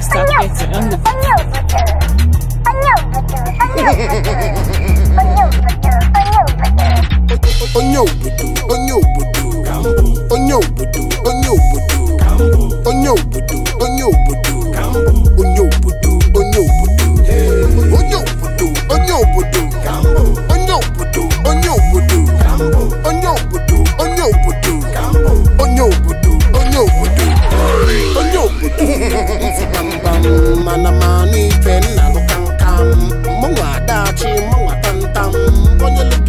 Stop dancing on the Onyobudu, onyobudu, onyobudu, onyobudu, onyobudu, onyobudu. mana mmanụ ife nna lụkamkam mụnwa adachi mụnwa tamtam onye lụgị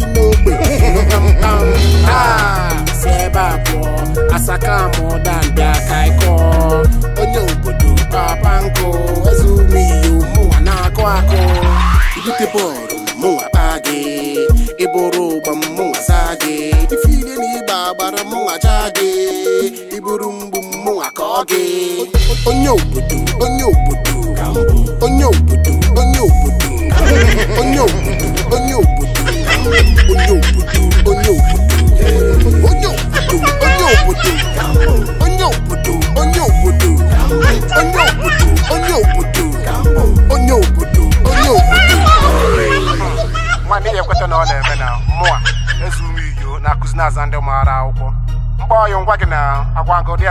asaka na na-akụ akụ ibute bọọlụ mụnwa kpaa gị ịbụrụ ụgba mụnwa saa gị ife ile na ịgba agbara Ôn ôn ôn ôn ôn ôn ôn ôn ôn nhau, nhau, nhau, nhau, nhau, nhau, nhau, nhau, mụnwa ka ọ gị onye obodo onye obodo onye obodo onye obodo onye obodo onye obodo onye obodo onye obodo onye obodo onye obodo onye obodo onye obodo onye obodo onye obodo onye obodo nwa n'ihi ekweta na ọ na-eme na mụa ezu m iyo na-akụzi na-aza ndị maara ô mgbaọyụ ngwa gị na agwagodi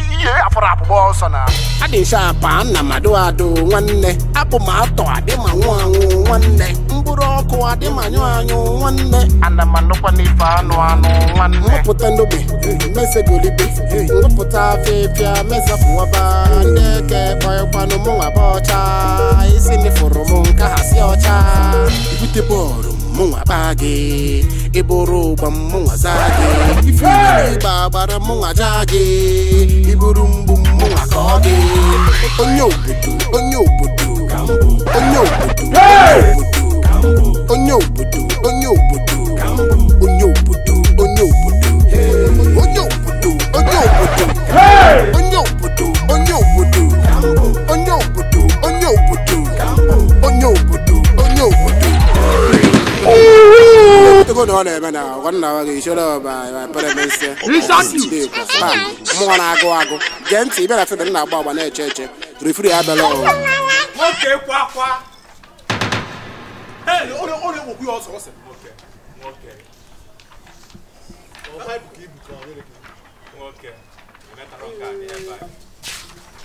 iye ihe afọrọ abụbọ ọsọ na adịsa apa nna mmadụ adụ nwanne apụ ma atọ adị ma nwụ anwụ nwanne mkpụrụ ọkụ adị ma nyụ anyụ nwanne ana m anụkwa n'ife anụ anụ nwanne nwepụta ndobe eh, mesegolibe eh, nwepụta afịfịa mesapụwaba ndị eke kpọịkwanụ mụnwa bụ ọcha isi mịfụrụ m nke ha si ọcha ibute bọọlụ munwa bage iburu gwa munwa zage ifiri ịgba gbara munwa jage iburu mgbu munwa ka ọ gị onye obodo onye obodo onye obodo onye obodo onye obodo onye obodo onye obodo onye obodo onye obodo onye obodo onye obodo onye obodo onye obodo onye obodo ko dɔɔ lɛ bɛna o kɔni na wa k'i sɔrɔ ba pɛrɛ bɛ sɛ ɔsidi kɔ ba mu kɔni ago ago jɛnti i bɛna fɛn bɛɛ na bɔ wa ne cɛ cɛ refiri y'a bɛɛ lɔ o. mo kè kwa kwa ee o de o de wo kuyɔ sɔrɔ sɛ. Okay.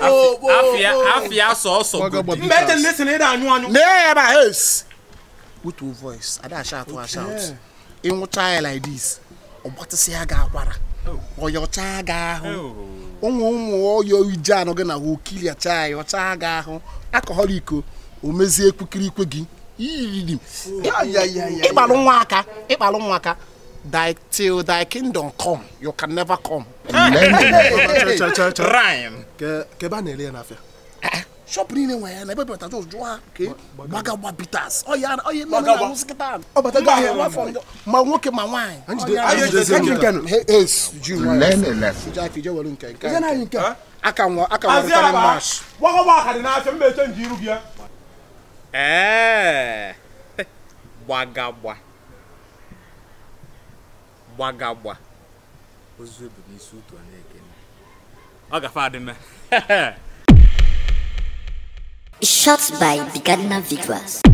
afia sọọsọ godi. mgbe ete ndị si na ịda ba with your voice ada ịnwụcha ya like this ọgbatịsị ya ahụ ụmụ ụmụ ọyọ ije anọ gị na okiliacha ya ọcha ahụ iko omezie ikwe gị thy till thy kingdom come you can never come. rhyme. kẹ bá nà ẹ lẹ́yìn n'afẹ́. Eh, shop niile nwere ya na ebe bata jos jụọ ha ka gbagagba bitas ọya ọya mme na ahụ sikịta ọbata gị ahịa nwafọ ndụ ma nwoke ma nwaanyị aka nwa aka nwa rịtara mash gwakọba aka dị n'afịa mba eche nji iru gị ya ee eh. gbagagba gbagagba ozu bụ n'isi utu ọ na-ekene ọ gafe adịme Shot by Bigadna Vigras.